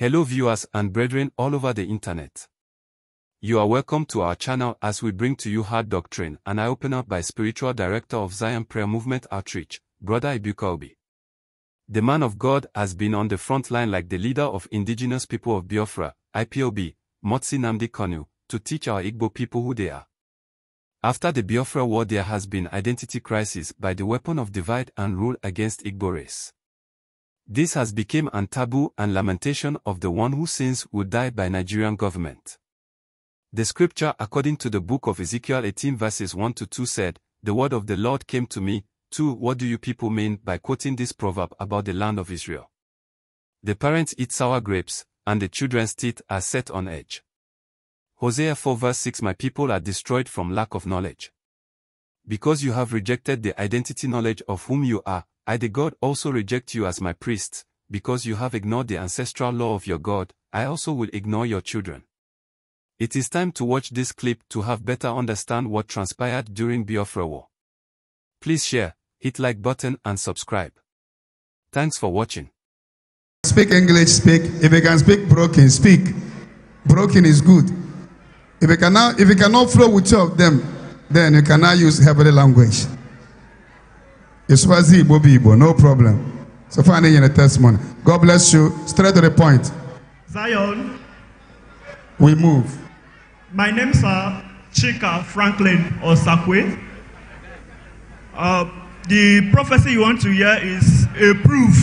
Hello viewers and brethren all over the internet. You are welcome to our channel as we bring to you hard doctrine and I open up by spiritual director of Zion Prayer Movement Outreach, Brother Ibuka The man of God has been on the front line like the leader of indigenous people of Biafra, IPOB, Motsi Namdi Kanu, to teach our Igbo people who they are. After the Biafra war there has been identity crisis by the weapon of divide and rule against Igbo race. This has become an taboo and lamentation of the one who sins will die by Nigerian government. The scripture according to the book of Ezekiel 18 verses 1 to 2 said, The word of the Lord came to me, 2. What do you people mean by quoting this proverb about the land of Israel? The parents eat sour grapes, and the children's teeth are set on edge. Hosea 4 verse 6 My people are destroyed from lack of knowledge. Because you have rejected the identity knowledge of whom you are, I the God also reject you as my priests, because you have ignored the ancestral law of your God, I also will ignore your children. It is time to watch this clip to have better understand what transpired during Biafra war. Please share, hit like button and subscribe. Thanks for watching. Speak English, speak. If you can speak broken, speak. Broken is good. If you cannot, if you cannot flow with two of them, then you cannot use heavenly language. Iswazi Igbo no problem. So far, in the testimony. God bless you. Straight to the point. Zion. We move. My name is uh, Chika Franklin Osakwe. Uh, the prophecy you want to hear is a proof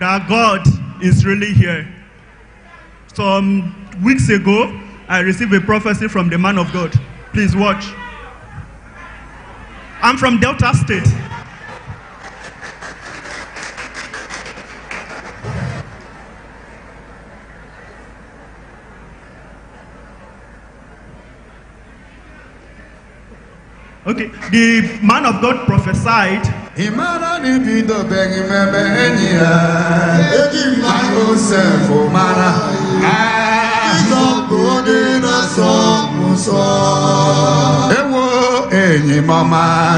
that God is really here. Some weeks ago, I received a prophecy from the man of God. Please watch. I'm from Delta State. Okay, the man of God prophesied. Ewo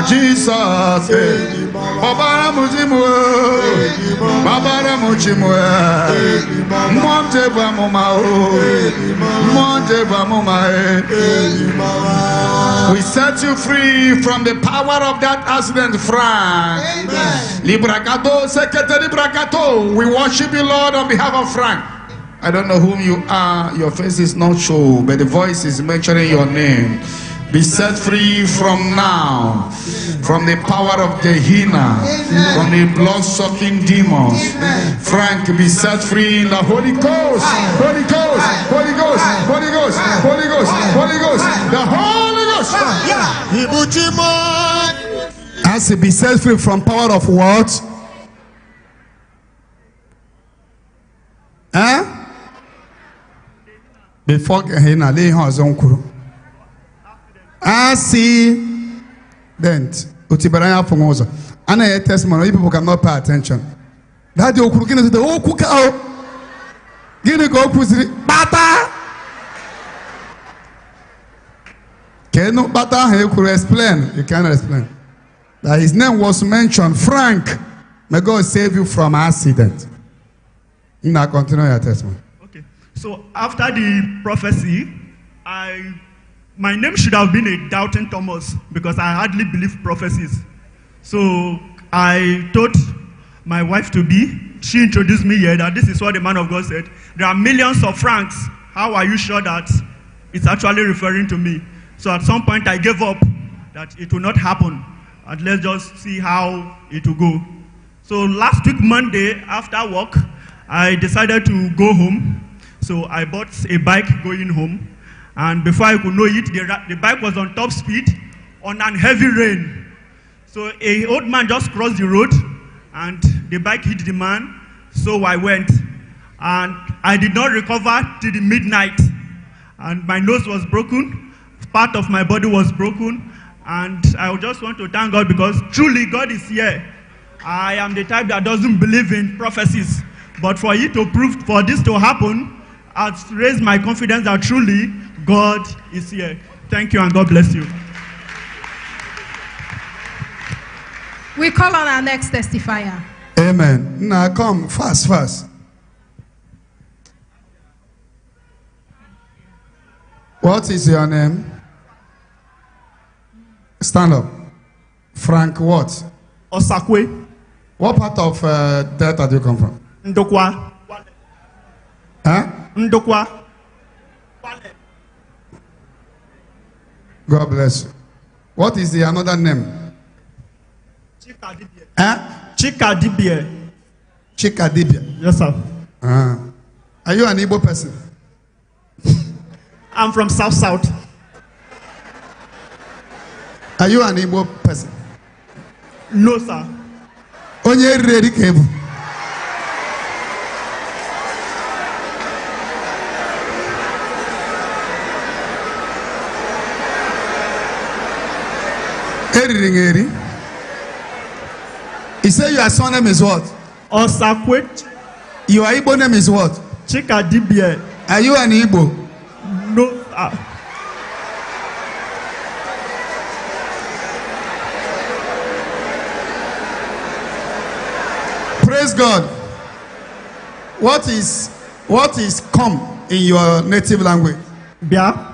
Jesus babara mochimwe monte bamoma monte bamoma we set you free from the power of that accident Frank librakato secretary brakato we worship you Lord on behalf of Frank I don't know whom you are. Your face is not shown, but the voice is mentioning your name. Be set free from now, from the power of Gehenna, from the blood-sucking demons. Frank, be set free in the Holy Ghost, Holy Ghost, Holy Ghost, Holy Ghost, Holy Ghost, Holy Ghost, the Holy Ghost. Yeah. As he be set free from power of what? Huh? Eh? Before Gehenna, lay hands on Kuru accident. Utibaranya from also. Ana I testimony, people cannot pay attention. That the Okurkin is the Okukao. Gini go bata. Kenu bata he could explain. You cannot explain. That his name was mentioned, Frank. May God save you from accident. Now continue your testimony. Okay. So after the prophecy, I my name should have been a doubting Thomas because I hardly believe prophecies. So I told my wife to be, she introduced me here that this is what the man of God said. There are millions of francs. How are you sure that it's actually referring to me? So at some point I gave up that it will not happen. And let's just see how it will go. So last week, Monday, after work, I decided to go home. So I bought a bike going home. And before I could know it, the, the bike was on top speed on a heavy rain. So a old man just crossed the road and the bike hit the man. So I went and I did not recover till the midnight. And my nose was broken, part of my body was broken. And I just want to thank God because truly God is here. I am the type that doesn't believe in prophecies. But for it to prove, for this to happen, has raised my confidence that truly God is here. Thank you and God bless you. We call on our next testifier. Amen. Now come fast, fast. What is your name? Stand up. Frank what? Osakwe. What part of uh, Delta do you come from? Ndokwa. Huh? Ndokwa. God bless you. What is the another name? Chika Dibia. Eh? Chika Dibia. Chika Dibia. Yes, sir. Uh, are you an Igbo person? I'm from South South. Are you an Igbo person? No, sir. Onye rere ka ebu. riri ngeri. He said your surname is what? Osakwet. Your Igbo name is what? Chika Chikadibie. Are you an Igbo? No. Uh. Praise God. What is what is come in your native language? Bia.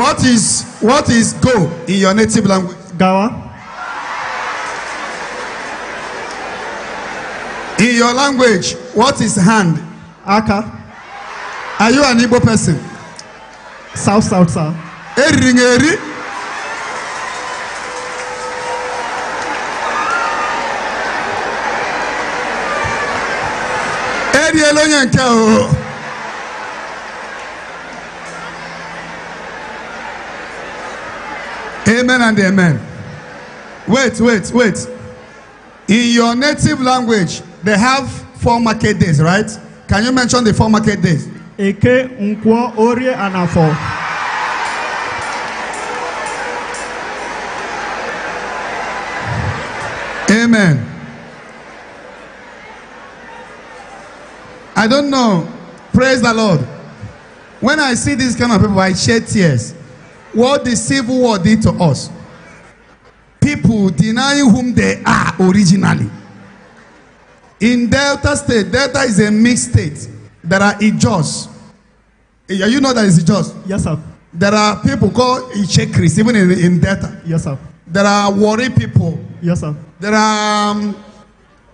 What is what is go in your native language? Gawa. In your language, what is hand? Aka. Are you an Igbo person? South South sir. Eringeri. Eri elonye nke o. Amen and amen. Wait, wait, wait. In your native language, they have four market days, right? Can you mention the four market days? Eke, Nkwo, Orie, and Afo. Amen. I don't know. Praise the Lord. When I see these kind of people, I shed tears what the civil war did to us. People denying whom they are originally. In Delta State, Delta is a mixed state. There are Ijos. You know that is Ijos? Yes, sir. There are people called Ichekris, even in, in Delta. Yes, sir. There are Wari people. Yes, sir. There are um,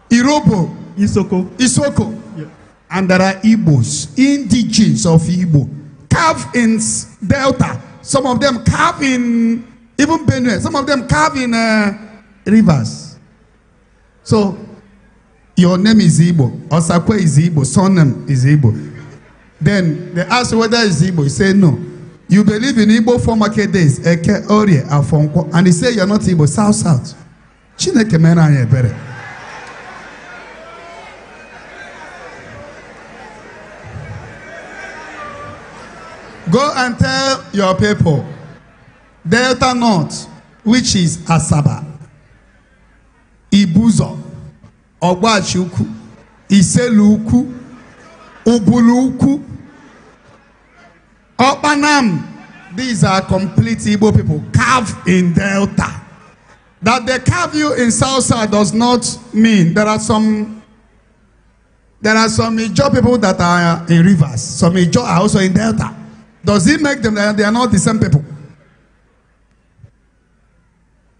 Irobo. Isoko. Isoko. Yeah. And there are Igbos, indigens of Igbo, carved in Delta. Some of them carve in even Benue. Some of them carve in uh, rivers. So your name is Igbo. Osakwe is Igbo. Surname is Igbo. Then they ask whether it's Igbo. You say no. You believe in Igbo for market days. Eke, Orie, Afonko. And he say you're not Igbo. South, South. Chineke mera anyị ebere. Go and tell your people, Delta North, which is Asaba, Ibuzo, Ogbachiukwu, Iseluuku, Ubuluku, Obanam. These are complete Igbo people carved in Delta. That they carve you in Southside does not mean there are some there are some Ijo people that are in rivers. Some Ijo are also in Delta. Does it make them that they are not the same people?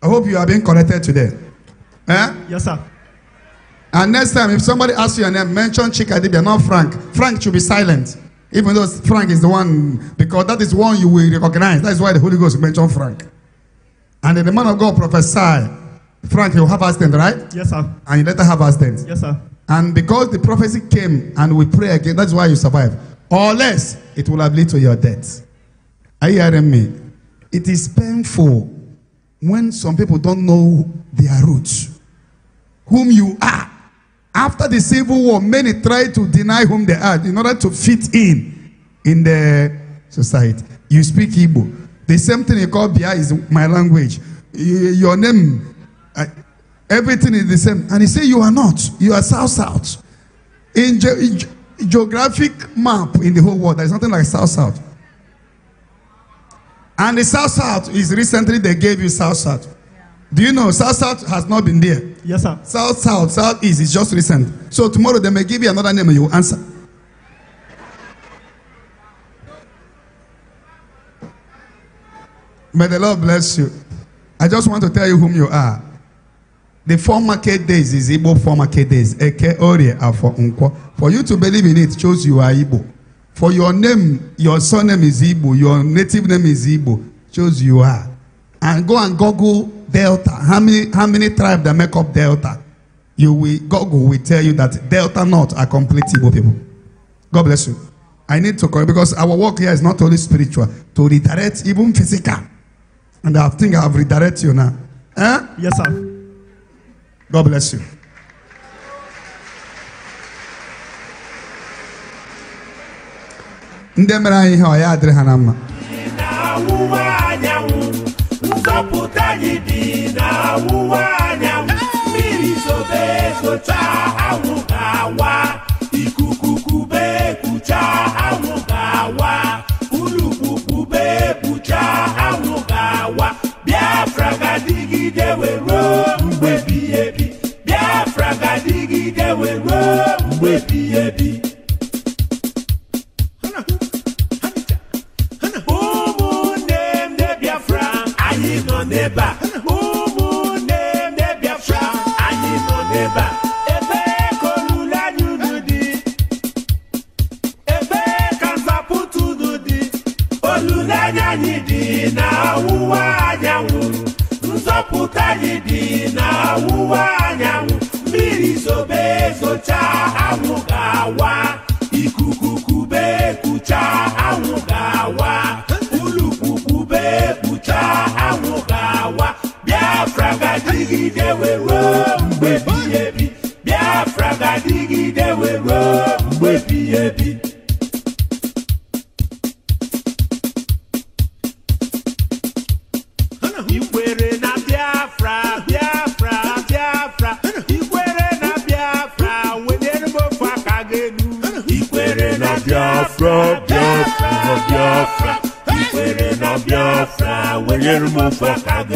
I hope you are being corrected today. Eh? Yes, sir. And next time, if somebody asks you your name, mention Chikadibia, not Frank. Frank should be silent. Even though Frank is the one, because that is one you will recognize. That is why the Holy Ghost mentioned Frank. And the man of God prophesied, Frank, you have accident, right? Yes, sir. And you later have accident. Yes, sir. And because the prophecy came and we pray again, that's why you survive. or less, it will have led to your death. Are you hearing me? It is painful when some people don't know their roots, whom you are. After the Civil War, many tried to deny whom they are in order to fit in in the society. You speak Igbo. The same thing you call Bia is my language. Your name, everything is the same. And he say you are not. You are South South. In, in geographic map in the whole world. There's nothing like South South. And the South South is recently they gave you South South. Do you know South South has not been there? Yes, sir. South South, South East is just recent. So tomorrow they may give you another name and you will answer. May the Lord bless you. I just want to tell you whom you are. The four market days is Igbo four market days. Eke Orie Afọ Nkwo. For you to believe in it, shows you are Igbo. For your name, your surname is Igbo. Your native name is Igbo. Shows you are. And go and Google Delta. How many how many tribes that make up Delta? You will Google will tell you that Delta North are complete Igbo people. God bless you. I need to correct because our work here is not only spiritual, to redirect even physical. And I think I have redirected you now. Eh? Yes, sir. God bless you. ndị mere anyị ihe adịrị ha na mma Biafra ga were ebi ebi. baby. Ikwere na Biafra, Biafra, Biafra. Ikwere na Biafra, wenyere m ofe aka gelu. Ikwere na Biafra, Biafra, Biafra. Ikwere na Biafra, wenyere m ofe aka gelu.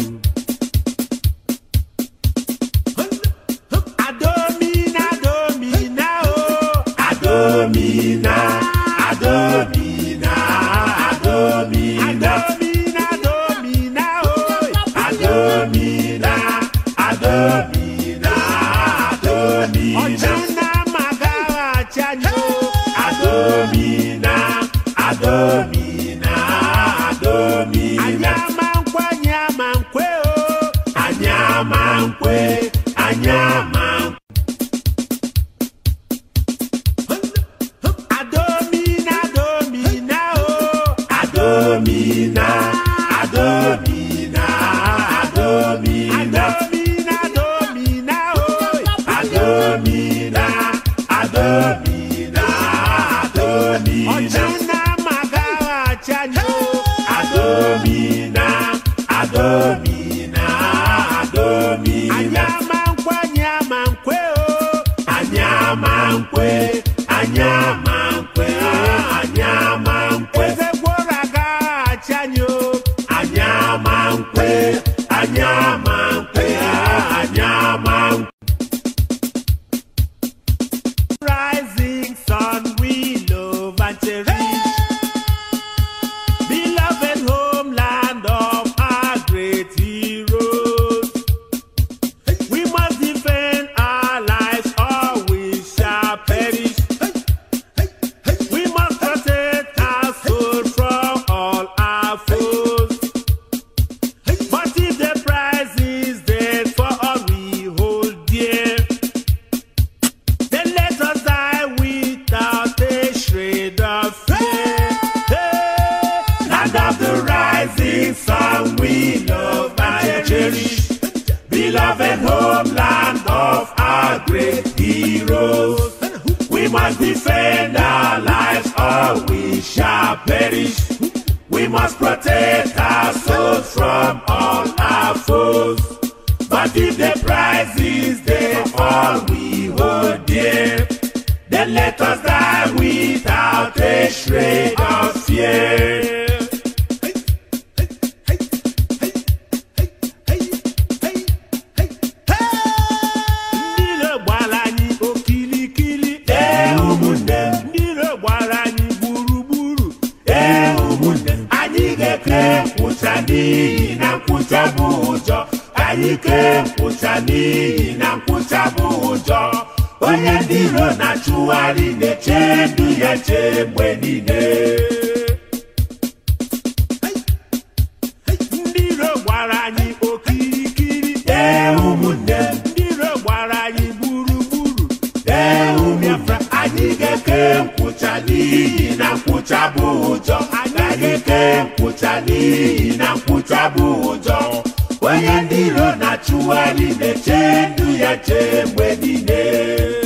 heroes. We must defend our lives or we shall perish. We must protect our souls from all our foes. But if the prize is there for we hold dear, then let us die without a shred. onye ndị iro na-achụgharị na-eche ndụ ya che mgbe niile ndị iro gbara anyị okirikiri ee ụmụ m ndị iro gbara anyị gburugburu ee ụmụafra anyị ga-eke nkwụcha n'iyi na nkwụcha bụ ụjọ agaghị onye ndị iro na-achụgharị na-eche ndụ ya niile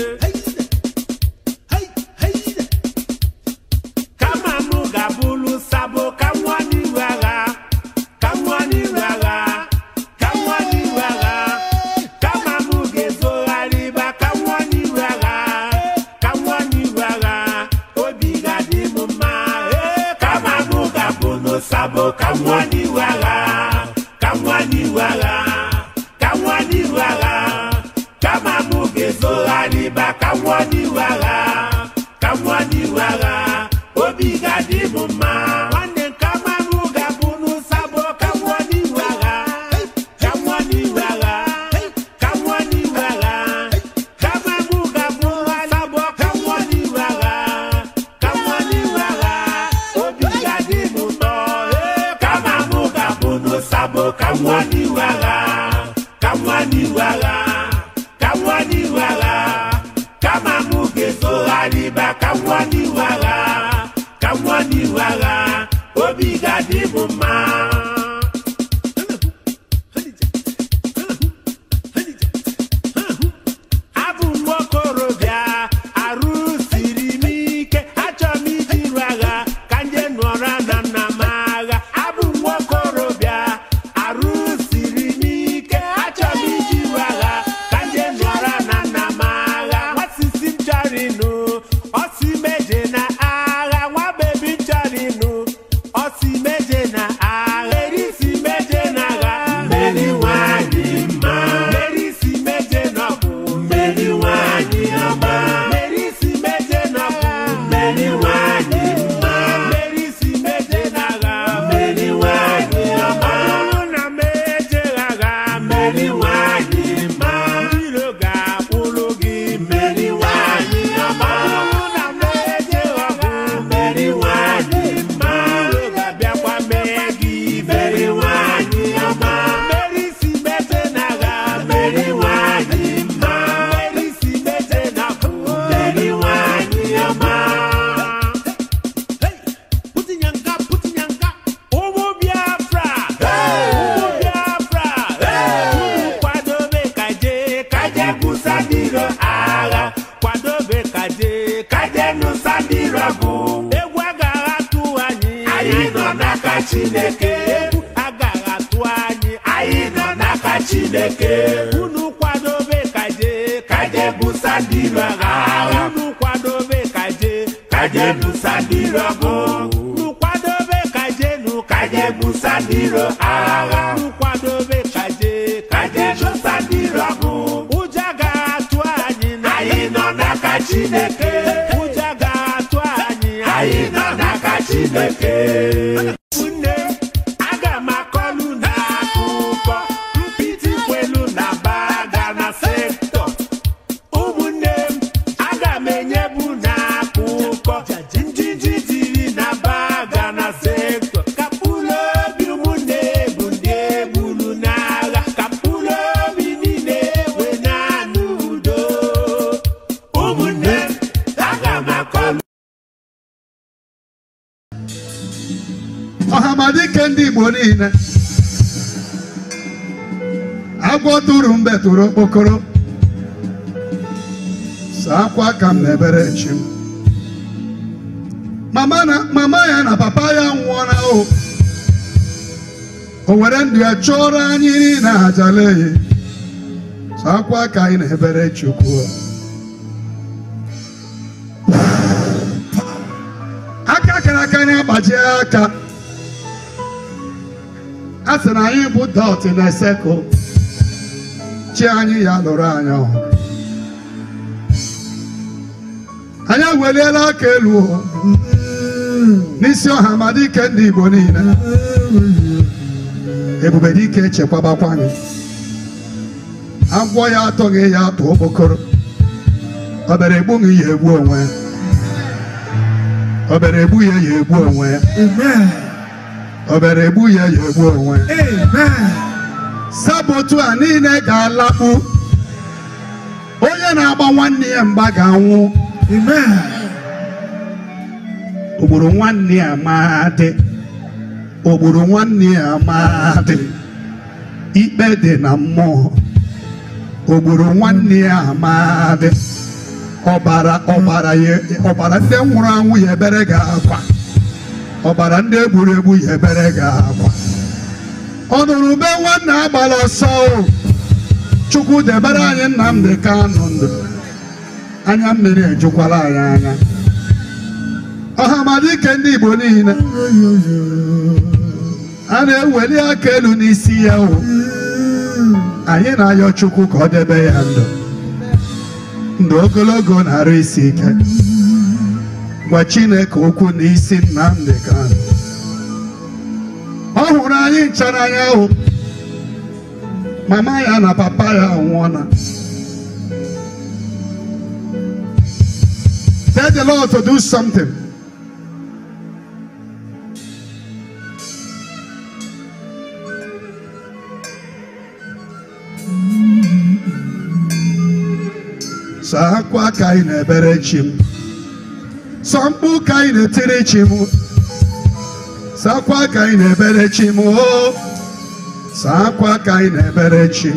chinekeu agagatu anyi aina naka chinekeu unukwadobe kaje kaje busandirwa gaa unukwadobe kaje kaje busandirwa go unukwadobe kaje nu kaje busandirwa aga unukwadobe kaje kaje busandirwa go ujagatu anyi aina naka chinekeu ujagatu anyi aina naka chinekeu igbo niile agwọ tụrụ mbe tụrụ okpokoro saa akwa ka m na-ebere chi m mama ya na papa ya nwụọla o o were ndụ ya chụọrọ anyị niile ajaleye saa akwa ka anyị na-ebere chukwu aka kara aka anyị agbaji aka a sị na anyị bụ dot na sekụl chi anyị ya lụrụ anyị ọ anyị eweliela aka elu n'isi ọha ma dike ndị Igbo niile ebube ike echekwabakwa anyị agwọ ya atọghị ya atụ okpokoro obere egbughị ya egbu onwe ya obere ya egbu onwe ya obere egbu ya ya egbu onwe sabotu a niile ga-alakpu onye na-agba nwanne ya mgba ga-anwụ ogburu nwanne ya maadị ogburu ya ikpe dị na mmụọ ogburu nwanne ya maadị ọbara ọbara ndị nwụrụ anwụ ya ebere ga-akwa ọbara ndị egburu ya ebere gị ọ ọnụrụ be nwanna agbara ọsọ chukwu debere anyị Nnamdi anụ ndụ anya mmiri ejukwala anyị anya ọhamadike ndị Igbo niile a na-eweli aka elu n'isi ya o anyị na-ayọ chukwu ka ọ debe ya ndụ ndụ ogologo na-arụ isi ike gwa Chineke okwu n'isi Nnamdi Kanu ọ hụrụ anyị nchara anya ahụ mama ya na papa ya anwụọla tell the Lord to do something saa akwa aka anyị na ebere chi m sọ ka anyị na-etiri chi m sakwa ka anyị na-ebere chi m oh. sakwa ka anyị na-ebere chi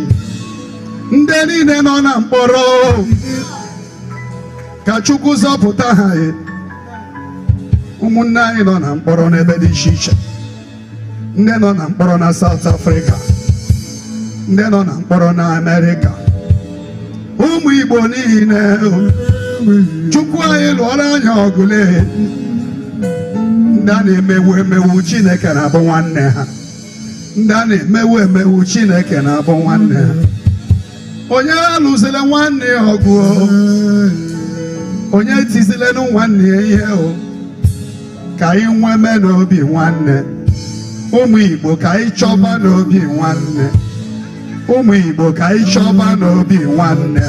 ndị niile nọ na mkpọrọ oh. ka Chukwu zọpụta ha eh. ụmụnne anyị nọ na mkpọrọ n'ebe dị iche iche ndị nọ na mkpọrọ na Saụt afrịka ndị nọ na mkpọrọ na Amerịka ụmụ Igbo niile oh. chukwu anyị lụọrọ anya ọgụle ndị a na-emewu emewu chineke na-abụ nwanne ha ndị a na-emewu emewu chineke na-abụ nwanne ha onye alụzila nwanne ya ọgụ onye tizilenụ nwanne ya ihe o ka anyị nweme n'obi nwanne ụmụ igbo ka anyị chọba n'obi nwanne ụmụ igbo ka anyị chọba n'obi nwanne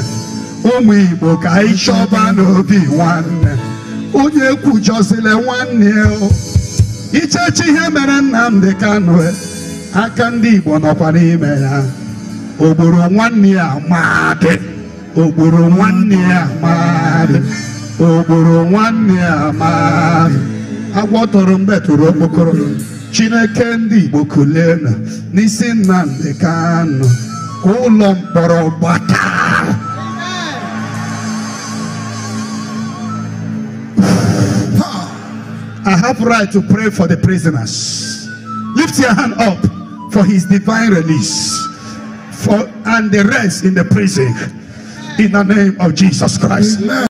ụmụ Igbo ka anyị chọba n'obi nwanne onye kwujọzile nwanne ichechi ihe mere Nnamdi Kanu e. aka ndị Igbo nọkwa n'ime ya ogboro nwanne ya madị ogboro nwanne ya ogboro tụrụ okpokoro Chineke ndị Igbo kulenu n'isi Nnamdi Kanu ka ụlọ mkpọrọ gbata I have right to pray for the prisoners. Lift your hand up for his divine release for and the rest in the prison in the name of Jesus Christ. Amen.